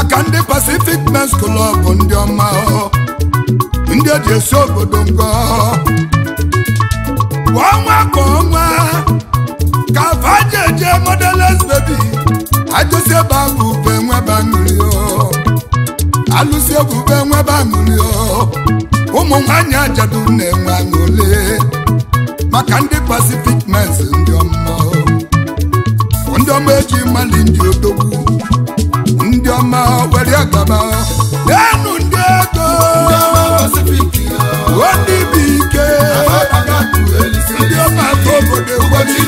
maka ndị Pacific Men's Club ndị ọma ndị e ji esi obodo ngọ kwa ọnwa ka ọnwa ka fajeje modeles baby ajụsi ebe abụ ube nweba mmiri alụsi ebube nweba mmiri ụmụ nwanyị ajadu na-enwe aṅụle maka ndị Pacific Men's ndị ọma ndị ọma eji mali ndị odogwu obi ọma were ndị ego ndị bụ ike ndị ọma nke obodo ụbọchị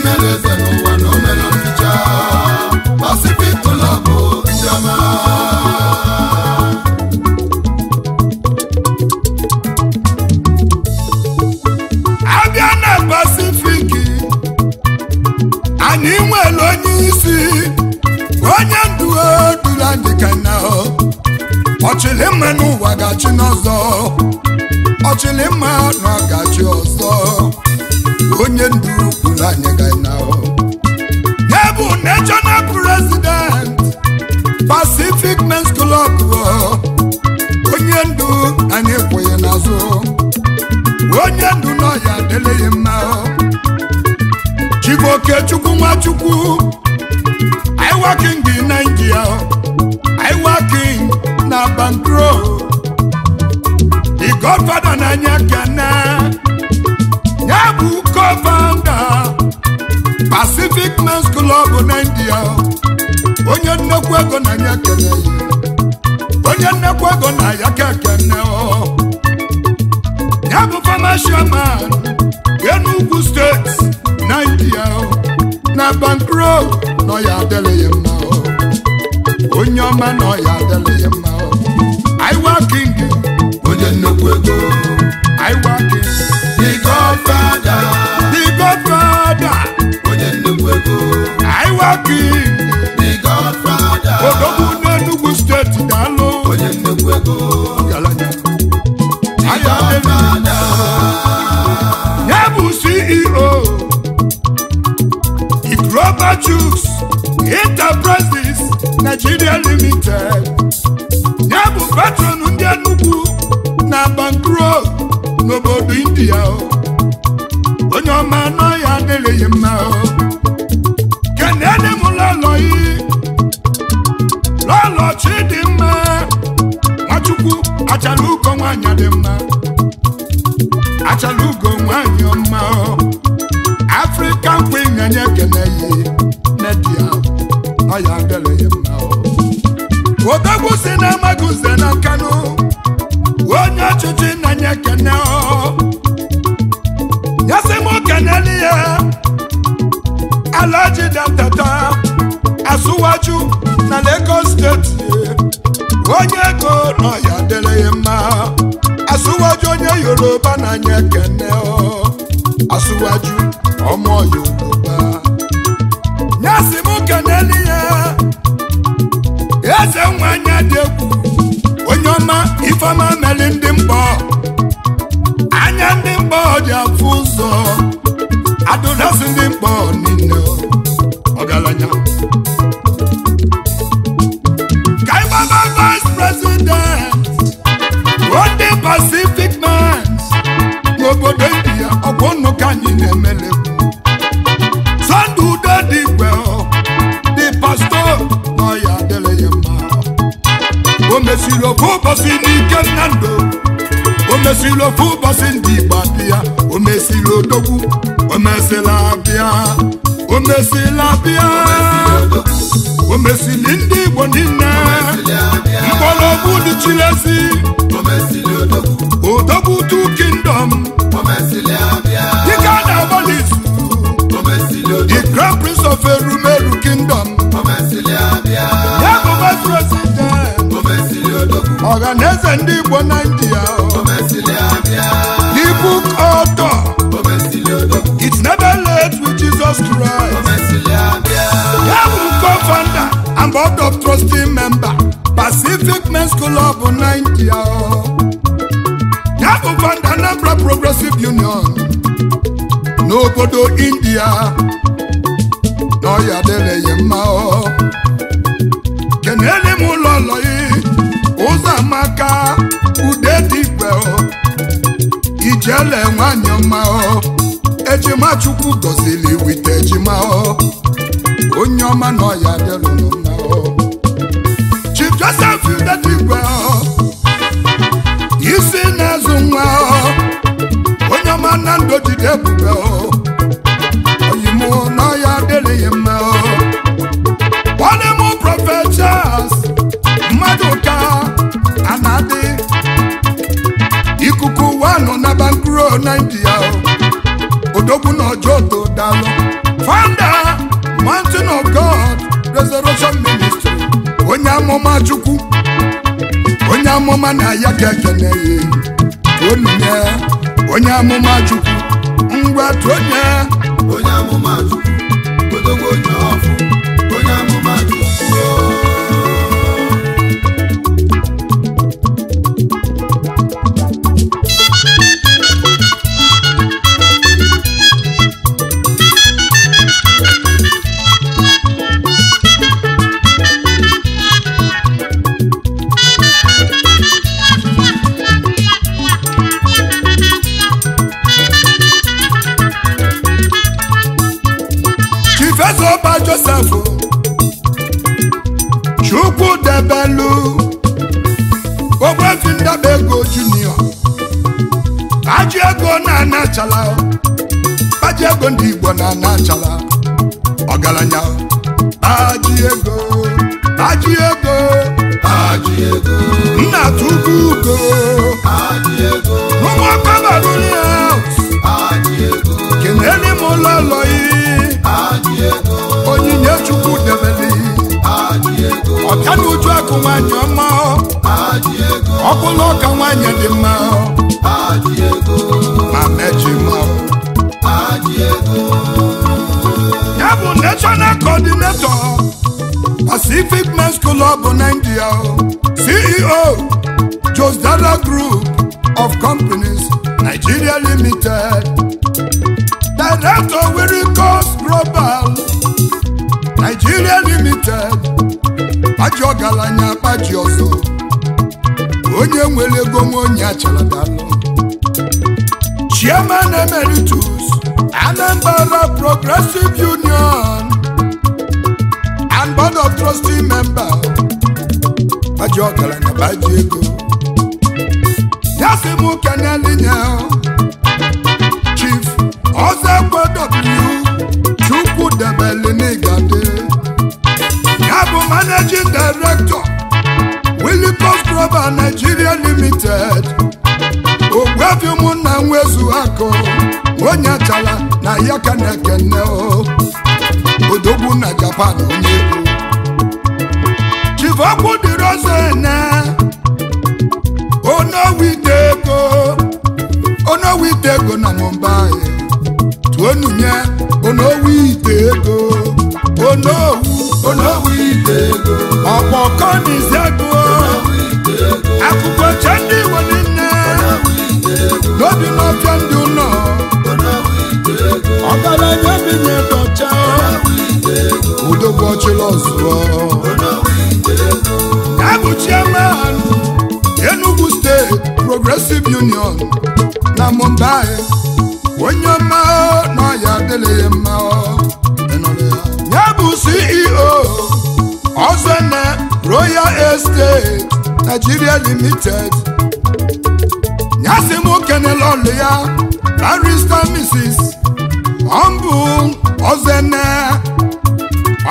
ọchịlị mma n'ụwa gachi n'ọzọ ọchịlị mma na gachi ọzọ onye ndu kwuru anyị ga-anahụ ya bụ na president Pacific Men's Club onye ndu anyị kwụghị n'azụ onye ndu nọ ya adịlịghị mma Chibokechukwu Nwachukwu iwaking Nigeria control the godfather n'anya Ghana ya bụ co-founder Pacific Men's Club na India onye nnekwu ego n'anya kene onye nnekwu ego na ya ka kene ya bụ former chairman Enugu State na India na Bankro nọ ya adịlịghị mma onye ọma Iwa King onye nnukwu ego ndị Igbo na the book author it's never late with Jesus Christ and board of member Pacific Nigeria Anambra Progressive Union n'obodo India n'ọya mma Ijele nwanyị ọma ejima Chukwu gọzili wite ejima onye ọma nọ ya dịrụnụ na Chief Joseph ọ. isi na-azụ nwa onye ọma na ndụ jide ọ. oyimụ nọ ya ọ mmadụ ka o Naịjirịa o odogwu na ọjọọ to dalụ founder Mountain of God Resurrection Ministry onye amụma Chukwu onye amụma na ya ka ekene ya onye onye amụma Chukwu ngwa tụ onye onye amụma Chukwu odogwu onye ọfụ olu ndị ndaba ego junior aji ego na-anachala aji ego ndị igbo na-anachala ọgaranya aji ego nwaanyị ọma ọkụ na ọka nwaanyị dị mma ma mechi mma ya bụ national coordinator Pacific Men's Club Nigeria CEO Josdara Group of Companies Nigeria Limited Director Wirikos Global Nigeria Limited ajọ ebugo nwa onye achaladalụ Chairman Emeritus Anambra Progressive Union and Board of Trustee Member Baji ọgaranya baji ego ya sị m kenelinya Chief Ozekwe W Chukwudebelinigadị ya bụ Managing Director Lagos Global Nigeria Limited ogbuefi ụmụnna nwezu akụ onye achala na ya ka na-ekene odogwu na Japan onye egwu chivokwu dịrị ọzọ ene onowite ego onowite na Mumbai tuonunye onowite ego onowu onowite akụkọ chee ndị igbo niile n'obi mafia ndị ụlọ ọgaranya bi na-edocha udogbu ọchịla ọzụọ abụ chiaman Enugu steeti Progressive Union na Mumbai onye ọma nọ ya adịghị mma ya bụ CEO Ozene Royal Estate Nigeria Limited nyasị m kenela ọlụ ya barista Mrs. ọmbụ ozene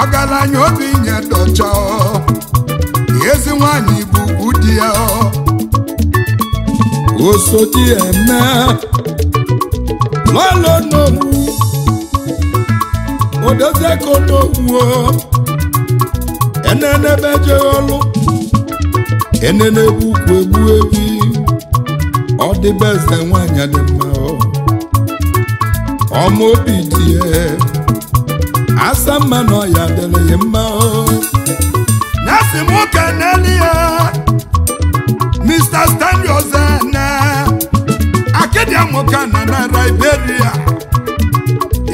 ọgaranya obi nye dọcha ezi nwanyị bụ ụdị ya osodi eme lọlọ n'owu odozi ego n'owu enenebe jee ọlụ ene na-egbu ukwu egbu ebi ọ dịbe eze nwanyị adị mma ọma obi dị ya asa mma na ọya dịrị ya mma ya si m ka n'elu ya Mr. Stanley Ozene akịdịa nwoke na na Iberia,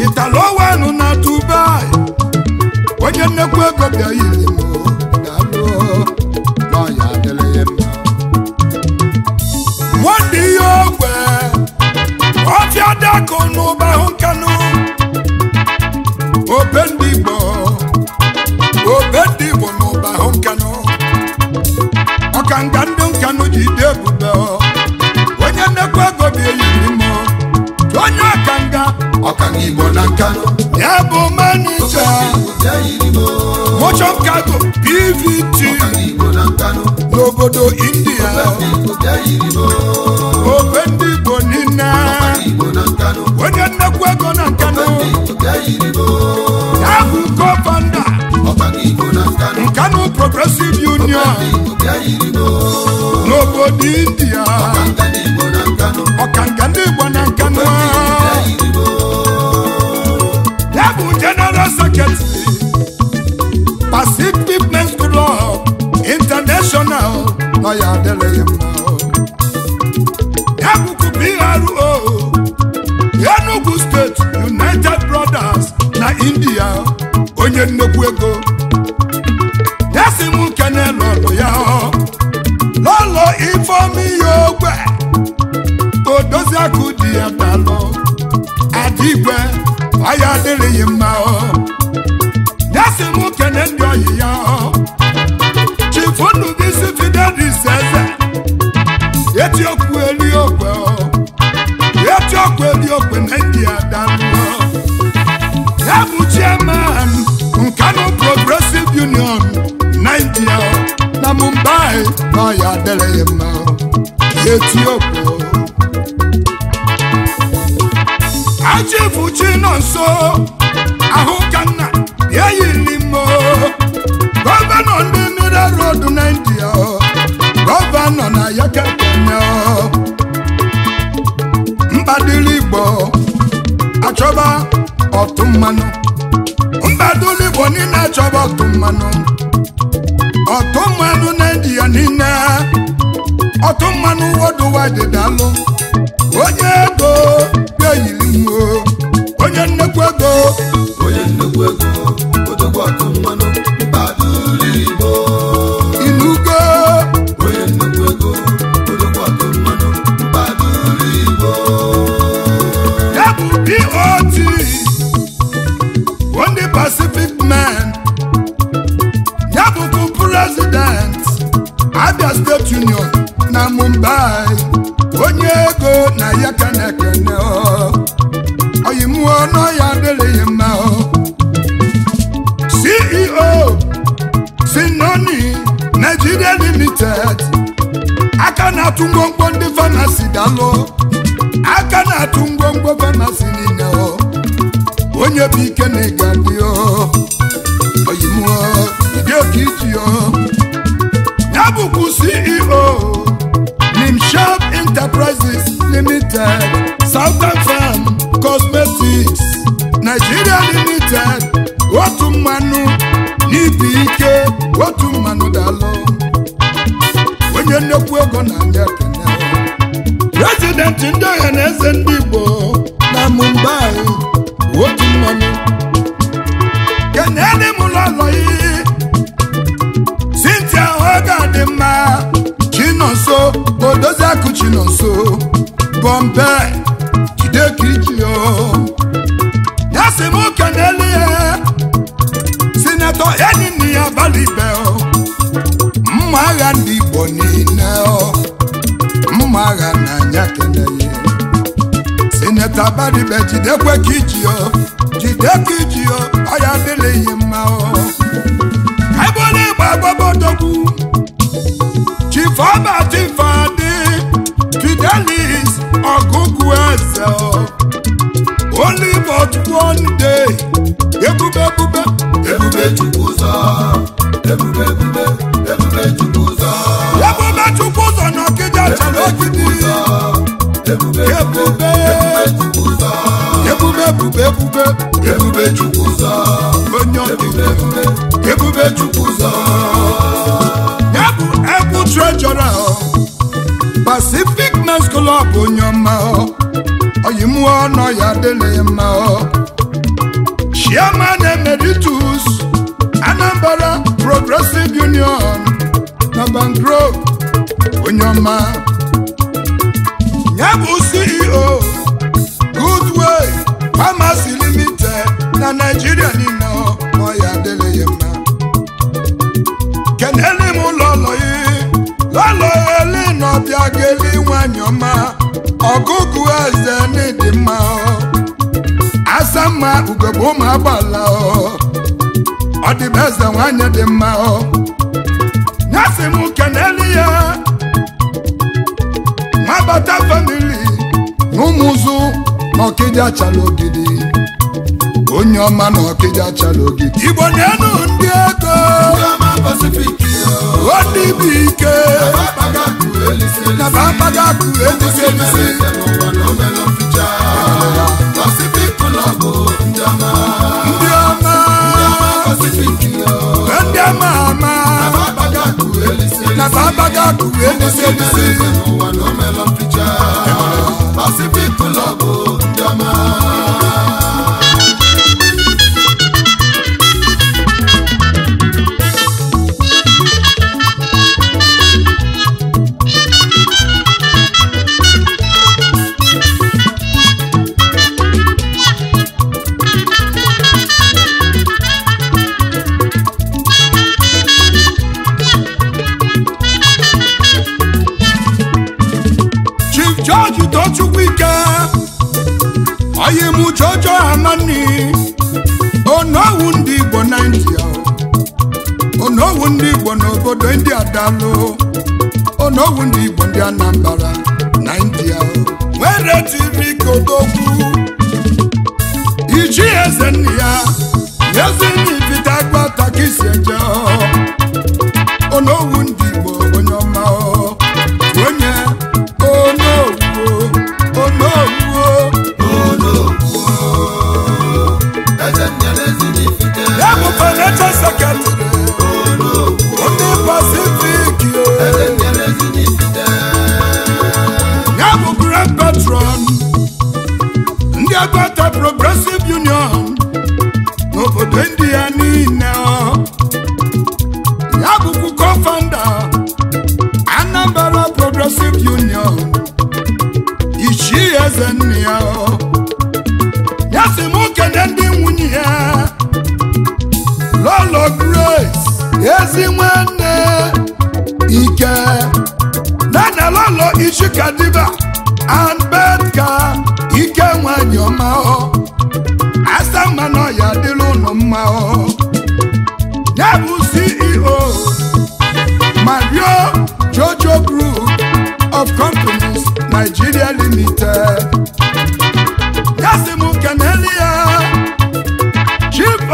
italo wenu na Dubai onye nnekwu ego bịa yiri m ọkụ n'ụba hụ nkanụ obe ndị Igbo obe ndị Igbo n'ụba hụ nkanụ ọka nga ndị nkanụ ji dị ebube onye nnekwu ego bi eyiri mọ onye ọka nga Igbo na nkanụ ya bụ manija motion cargo PVT n'obodo India obe onye nnekwu ego na nkanụ ya bụ nkanụ progressive union n'obodo india ọkanga ndị igbo na nkanụ ya bụ general secretary pacific men's club international ọ ya mma ya bro India onye nnekwu ego desi m nkene n'ọlụ ya n'ụlọ ifeọma ihe ogbe odozi akụ dị ya dalụ ya ọya adịrịghị mma desi m nkene ndị ọyị ya chifunu gị si fidelis eze eti okwu eli okwe eti na ndị ọ ya dere ya mma etiopụ ajibuchi nọ nso ahụ ka ya yiri mo gọvanọ ndị mineral road na india gọvanọ na yakakenya mbadili igbo achọba mbadili igbo achọba ọtụ mmanụ dị ya niile ọtụ mmanụ onye ego ga-eyiriwo onye nnekwu ego onye nnekwu ego odogwu ọtụ Soviet Union na Mumbai onye ego na ya ka na-ekene oyimụọ ya adịrịghị mma CEO Sinoni Nigeria Limited aka na-atụ ngwongwo ndị fanasi dalụ aka na-atụ ngwongwo fanasi niile onye bụ ike na ịgadị oyimụọ dị oke iji ọ ceo CEO shop Enterprises Limited Southern Farm Cosmetics Nigeria Limited otu mmanụ n'ibi ike otu mmanụ dalụ onye nnekwu ego na ndị Kenya prezidenti ndị ọha na eze ndị Igbo na Mumbai otu mmanụ So, bọmbe jide ka iji ya si m oke n'elu ya sinetọ enyi nne ya balibe mma agha ndị Igbo niile mma agha n'anya keneye sinetọ balibe jidekwe ka iji jide ka iji ọya adịlịghị mma ebe ọ na-egbe agbaba odogwu chifọba chifọ Felix ọgụgụ eze only but one day ebube ebube ebube chukwu ụzọ ebube ebube ebube chukwu ụzọ ebube chukwu ụzọ na ọkịja chọrọ ogidi ebube ebube ebube ebube ebube ebube chukwu ụzọ onye ọkịja ebube ebube chukwu ụzọ ya bụ ebu trejọra Lions Club onye ọma oyimụọ nọ ya dịlị Chairman Emeritus Anambra Progressive Union na Mangrove onye ọma ya bụ CEO Goodway Pharmacy Limited na Nigeria niile ọ ya adịlị ya mma kenele m ụlọ lọlọeli nọbịa ga-eli nwanyị ọma ọgụgụ eze n'ịdị mma asamma ugogbe ụmụ agbala ọ eze nwanyị dị mma nyasị m keneli ya nwabata famili na ụmụzụ na ọkịja ogidi onye ọma na ọkịja chara ogidi igbo na-enu ndị ego Pacific o ndị bụ ike na bapaga akụ elisi elisi ndị ọma ndị ọma. ama Pacific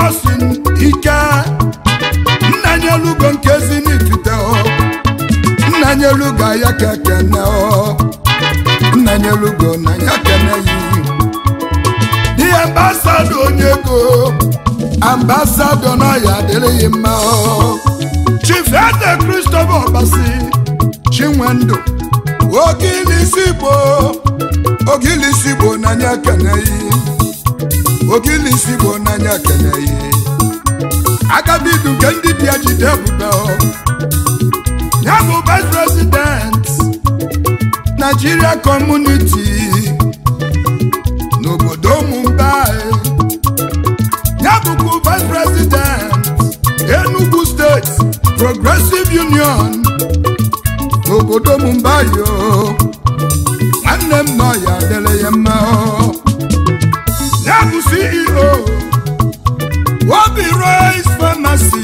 Austin Ike nna anyị elugo nke ezinifite nna anyị elugo ya ka ekene nna anyị na ya kene yi ambasadọ onye ego ambasadọ na ya adịrịghị mma Chief Eze Christopher Obasi Chinwendu Ogilisi na ya kene yi ogili isi bụ n'anya kene ihe agadi nke ndị bịa jide ebube ya bụ vice president Nigeria Community n'obodo Mumbai e. ya vice president Enugu steeti Progressive Union n'obodo Mumbai e o nwanne mma ya dele ya mma obi rice pharmacy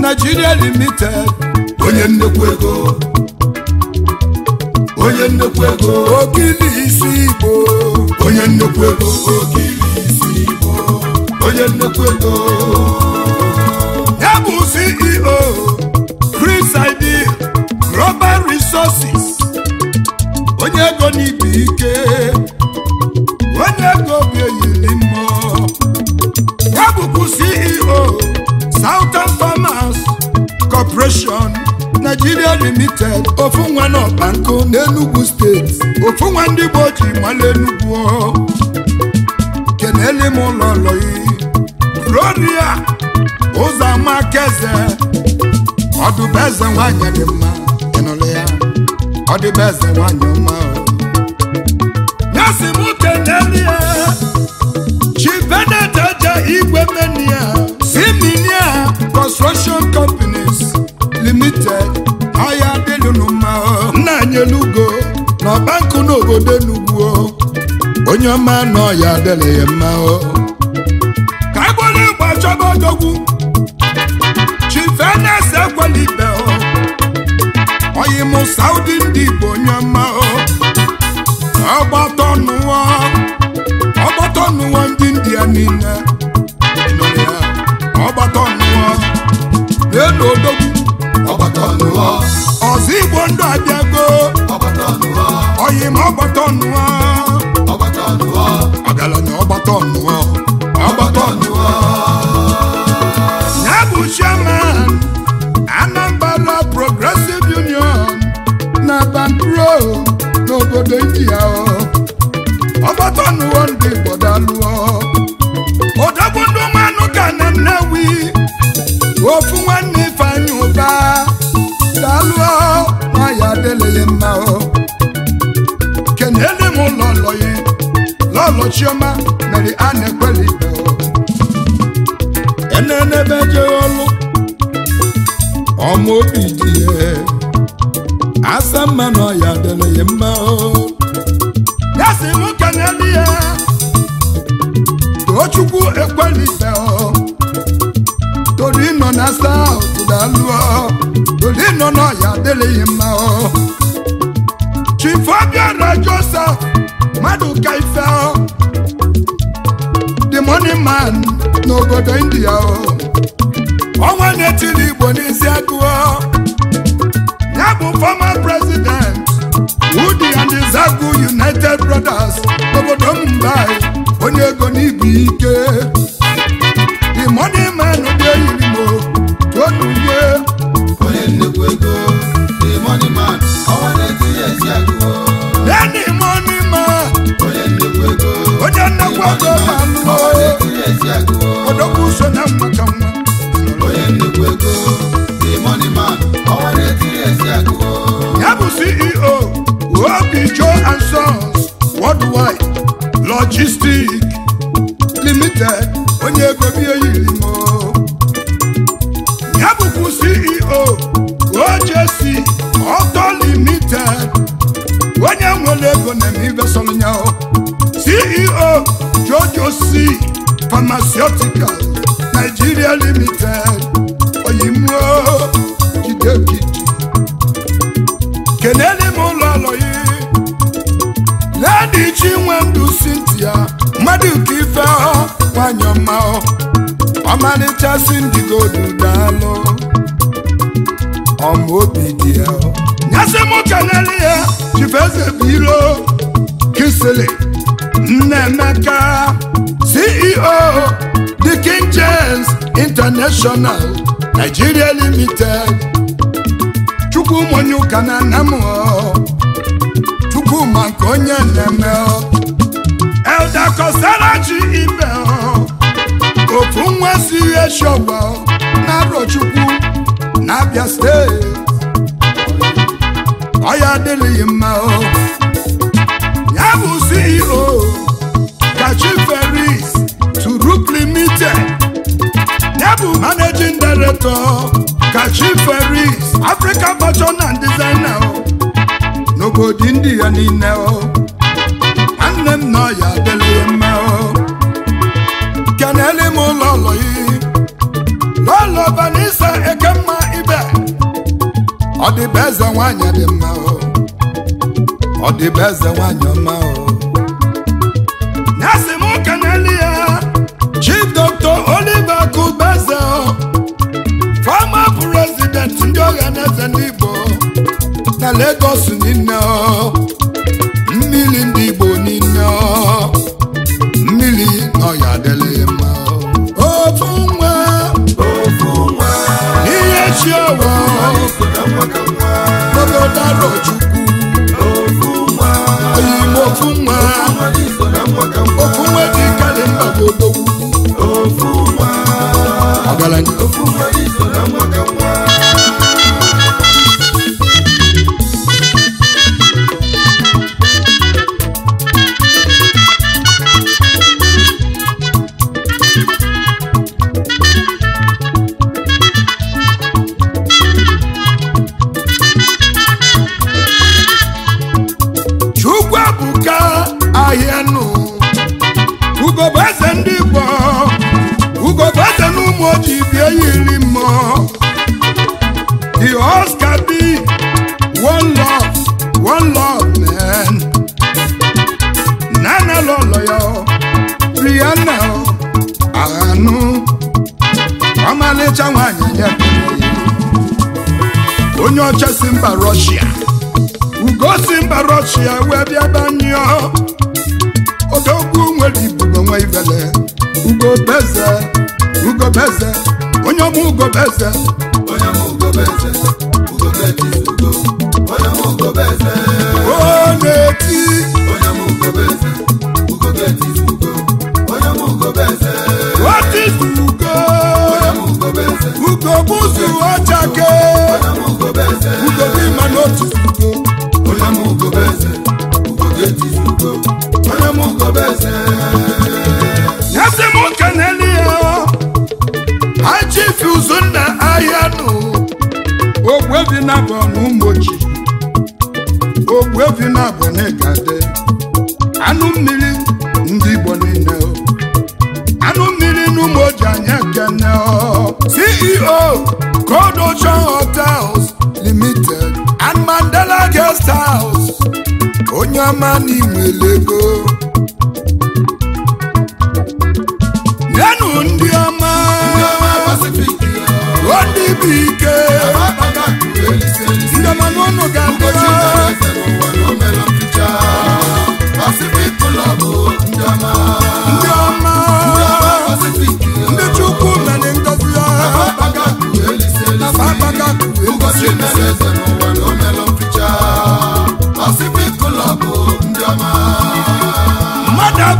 Nigeria limited onye nnekwu ego onye nnekwu ego okili isi igbo onye nnekwu ego okili isi igbo onye nnekwu ego ya bụ CEO Chris Ideal Global Resources onye ego n'ibi ike Corporation Nigeria Limited ofu nwa na n'Enugu steeti ofu nwa ndị Igbo ji mala Enugu kenele m ụlọ lọyi Gloria ọdụbeze nwanyị dị mma ịnụlụ ya ọdụbeze nwanyị kenele ya Chi Benedict Igwe Menia Siminia Construction Company elugo na ọba nkụ n'obodo enugwu onye ọma nọ ya adịla ya mma o ka agbara egbe achọba odogwu chifenas ekwela oyi mụ saudi ndị bụ onye ọ. ọma mere a na-ekweli ibe oh. enenebe jeghị ọlụ ọma obi dị ya asa mma na ọya dịrị ya mma oh. ya si m kenelu ya tochukwu ekweli ọ. Oh. toru ịnọ na saut ọ. toru ịnọ na ọya adịrịghị mma chifobia rajosa mmadụ ka ife ọ leading man n'obodo India ọnwa na-etili Igbo n'isi agụọ ya bụ former president Udi and Zagu United Brothers n'obodo Mumbai onye ego n'ibu ike CEO OJC Auto Limited onye nwere ego na ọ CEO Jojo C Pharmaceutical Nigeria Limited oyimuo jidegiji kenele m ụlọ ọlọyi ledi chinwe ndụ Cynthia mmadụ ka ife ọ ma ọmalịcha si ndigo dudalụ ọmaobi dị ya nyasị ka kelele ya chifeze biro. iro kisili nnemeka ceo the king international nigeria limited chukwu monye ụka na ọ. chukwu ma nke onye na-eme elda kosara ji ibe e ofu nwa si ihe shọba na arọ chukwu n'abịa steeti ọya adịghị mma o ya bụ CEO kachi Ferris Turuk Limited ya bụ managing director kachi Africa fashion and designer o n'obodo ndị ya niile o nwanne m na ọ ọya adịghị mma o kenele m ụlọ ụlọ yi n'ụlọ Vanessa Ekemma ọ dị eze nwanyị dị mma ọ dị eze nwanyị ọma ya si m n'elu ya chief dr oliver kubeze fama president ndị ọha na eze ndị na Lagos niile talent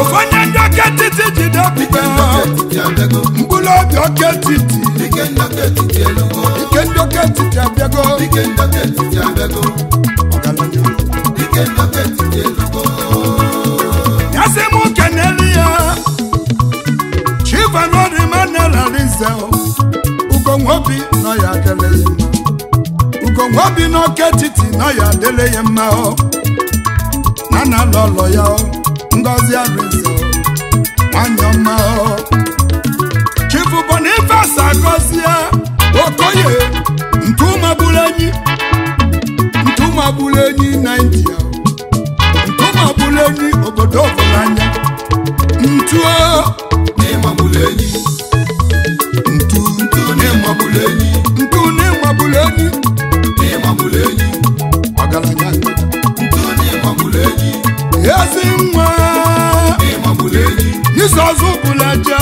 ofonye ndị oke etiti jide ọpụta mkpụrụ obi oke etiti nke ndị oke etiti abịago ya sị m kenelu ya chivanodimanelarize ugonwobi nọ ya adịle ya ugonwobi n'oke etiti nọ ya adịle ya mma na na-alụ ọlọ ya ngozi arịzọ nwanyị ọma chifu Boniface Agọzie Okoye ntumagburu enyi ntumagburu enyi enyi obodo ọbụlanya ntuo enyi ntu enyi ọgaranya ntu ezi nwa Jizọs bụlaje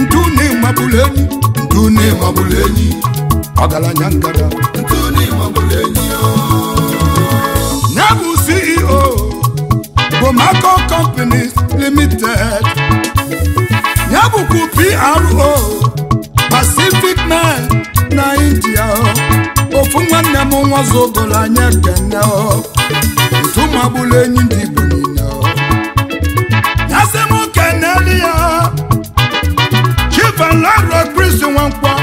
ndune mabụlụ enyi ndune ọgaranya ngara ya e bụ CEO Bomako Companies Limited ya PRO Pacific Mine na India ofu nwanne m nwa zụgoro anya kene ntu magbụlụ enyi Ifeanyi Road Prison Nwankwo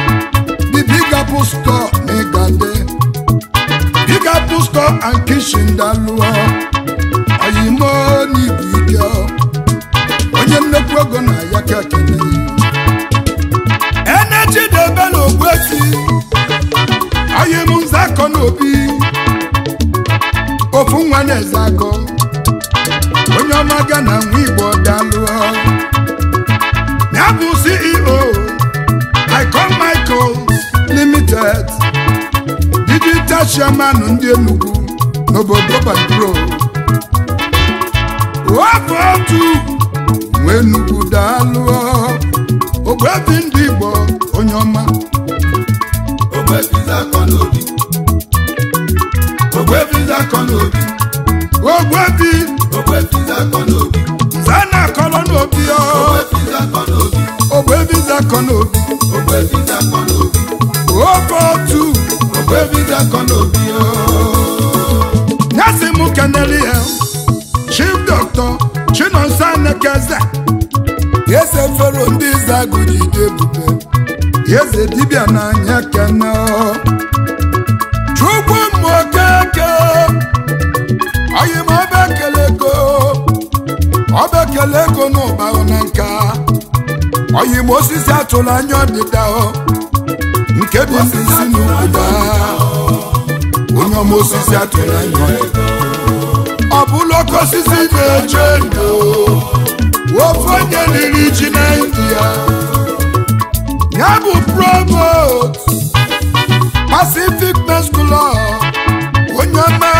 the Big Apple store n'Igande bigger Apple store and kitchen daluo oyimo n'ibu ike onye nnekwu ego na ya ka ekele ebe debe n'ogbuesi oyim nzakọ n'obi ofu nwa na-eze onye ọma ga na nwa igbo bịa jeeju ceo i call michaels limited didi jashua manu ndi enugu na ọba obodo baduro otu nwere enugu daalụọ ogwevi ndị ịbọ onye ọma ogwevi ndị ịbọ onye ọma ogwevi ndị ịbọ n'obi ogwevi ndị zakọ ogwevila kọ n'obi ogwevi ogwevila kọ n'obi zaina kọọlụ n'obi ya. akọ n'obi ofe otu nyasị m keneli ya e. chief dọkịta chinonso anekeze eze fero ndị zagụrụ ebube eze dibịa n'anya kene onye ma osisi atụrụ anya ọdịda nke bụ osisi na obodo onye ọma osisi atụrụ anya ọ bụla oke osisi na-eche ndụ ofu onye riri iji na india ya bụ promote Pacific Men's onye ọma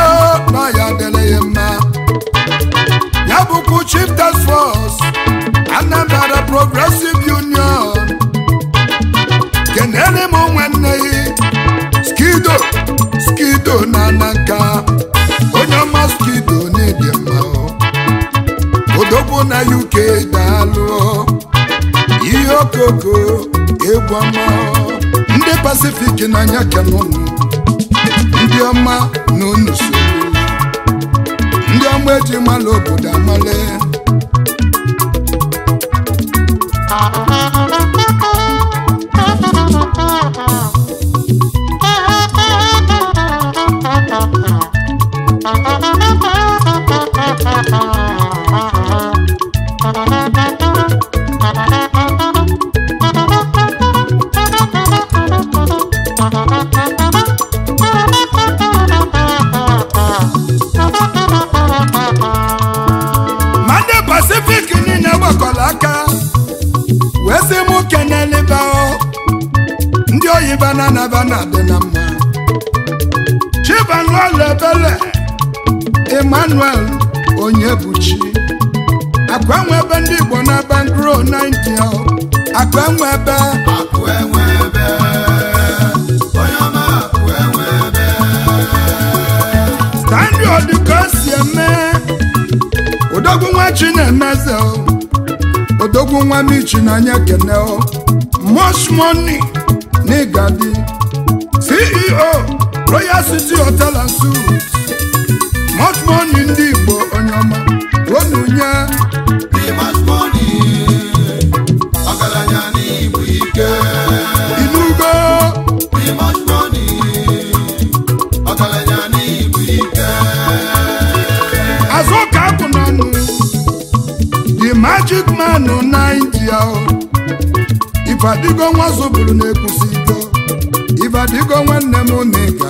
na ya dịrị ya mma ya bụkwa Chieftains Force Anambra Progressive Union kenere m nwanne gị skido skido na nanka onye ọma skido n'ịdị mma odogwu na UK daalụ ihe okoko egwu ọ. ndị na n'anya kenụnụ ndị ọma na so ndị ọma eji mala obodo amale Thank you. na naba na adị na mma Chibanụọlụ Ebele Emmanuel Onyebuchi Akụ akụenwe ebe ndị Igbo na Bangro 90 akụenwe ebe akụenwe ebe onye akụ akụenwe ebe Stanley Odiko si eme odogwu nwa Chinemeze odogwu nwa Michi na anya kene most n'igadi ceo royal city hotel and suites much money ndị igbo onye ọma ike. inugo azụ ka apụ nanụ the magic man Nigeria ifadigo nwa zụbụrụ na-ekwusigo ifadigo nwanne m na-eke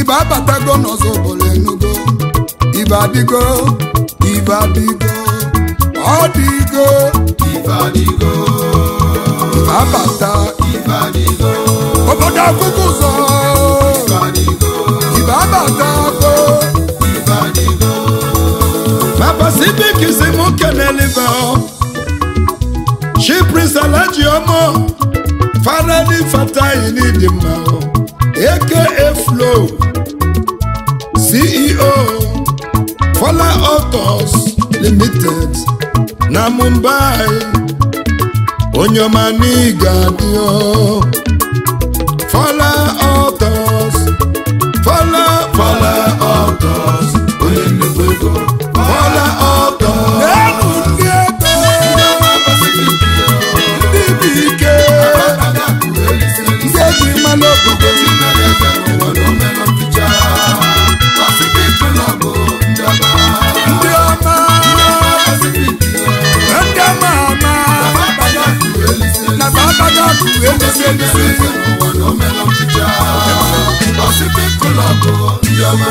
ibe abatago n'ọzọ bụrụ enugo ibe adịgo ibe adịgo ọ dịgo ibe adịgo ibe abata ibe adịgo obodo akwụkwọ ụzọ ibe adịgo ibe abata go ibe si m kelelibe Ojioma Fadani Fatayi N'Idimma aka Flow CEO Fola Autos Limited na Mumbai onye ọma n'iga dị Fola Autos Fola Fola Autos klọbụ egosi egosi n'ụwa na omela ọchịchị ọsịpị klọbụ ndị ọma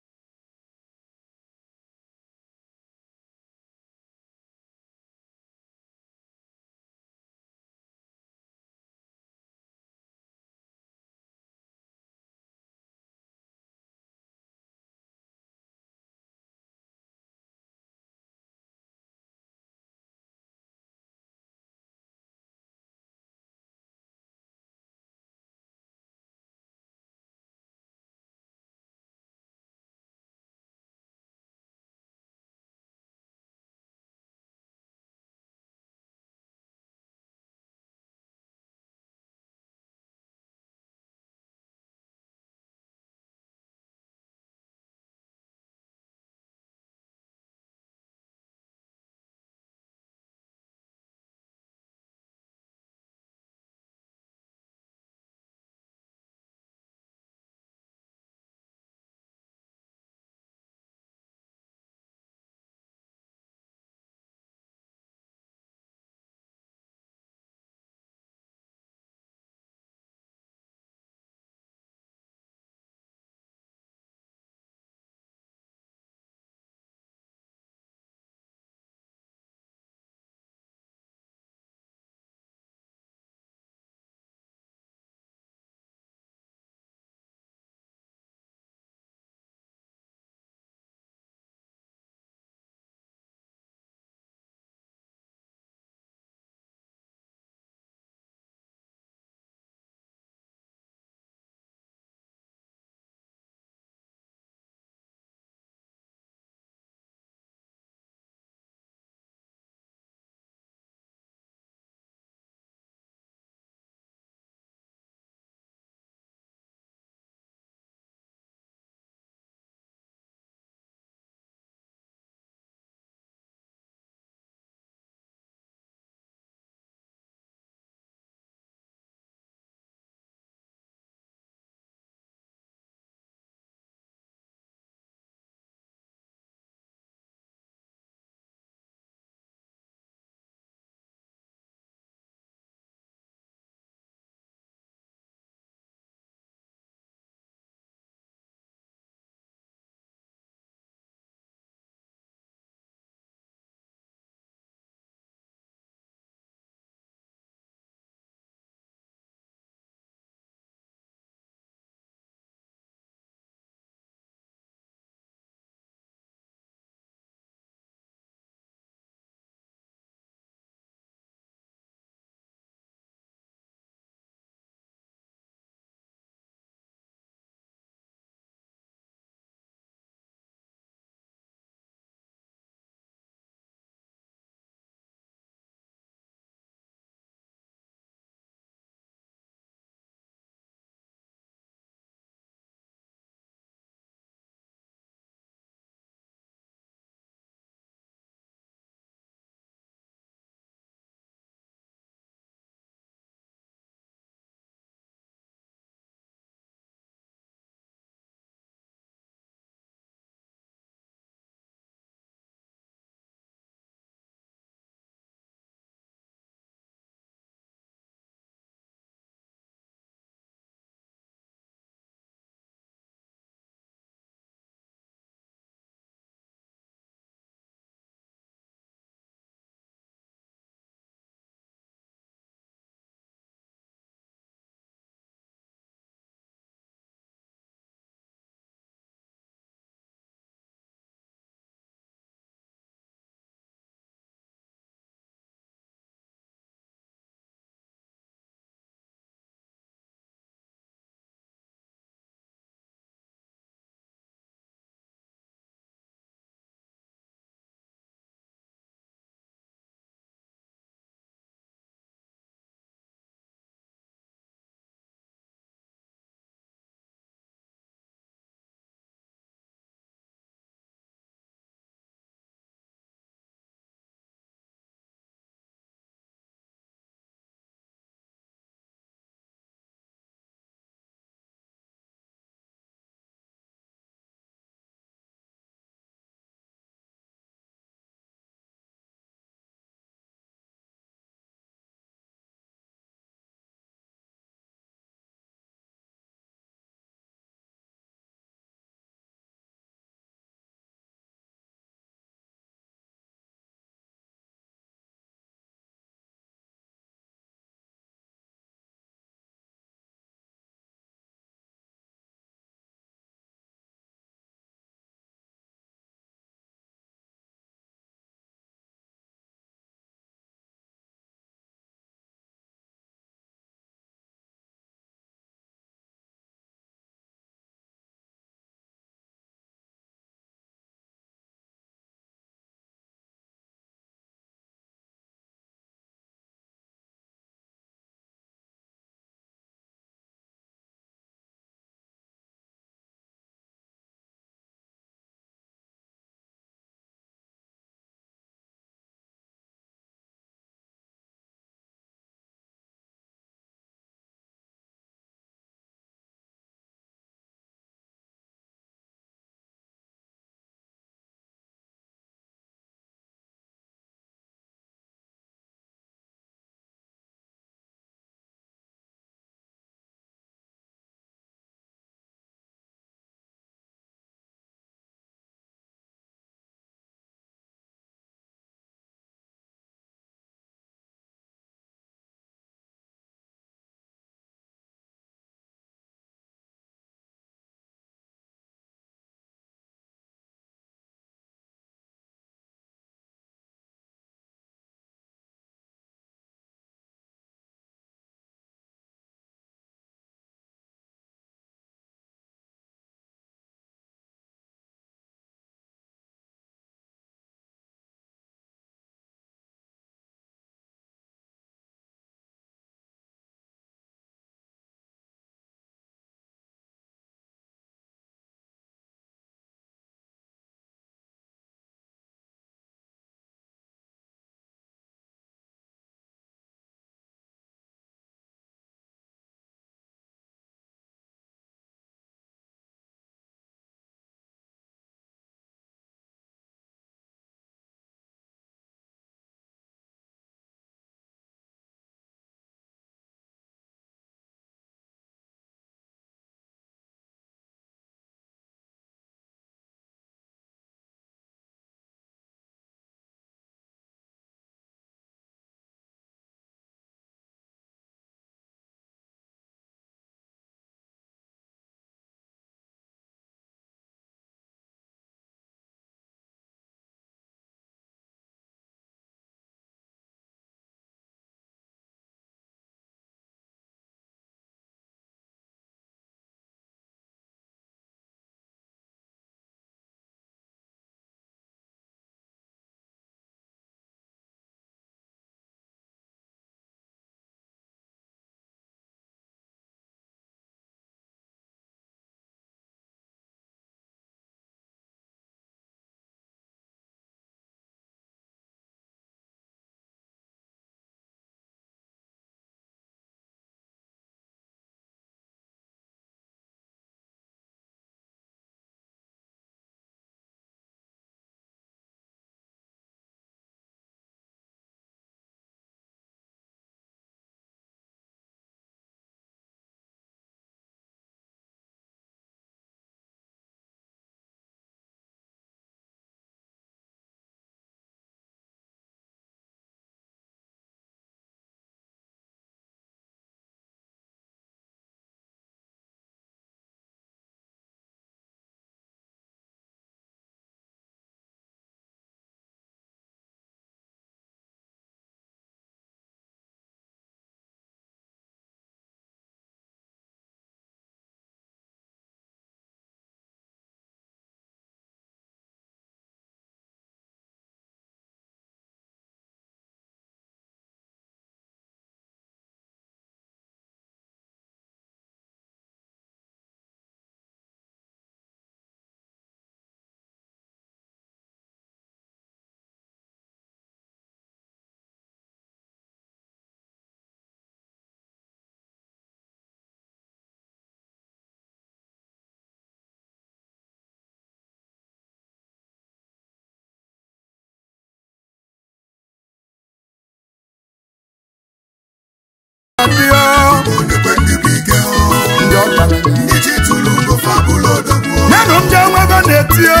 ọ na-etio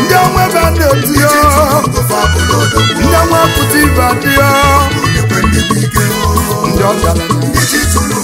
ndị ọnwa ebe a na-etio ndị pụta ibe adịọ ndị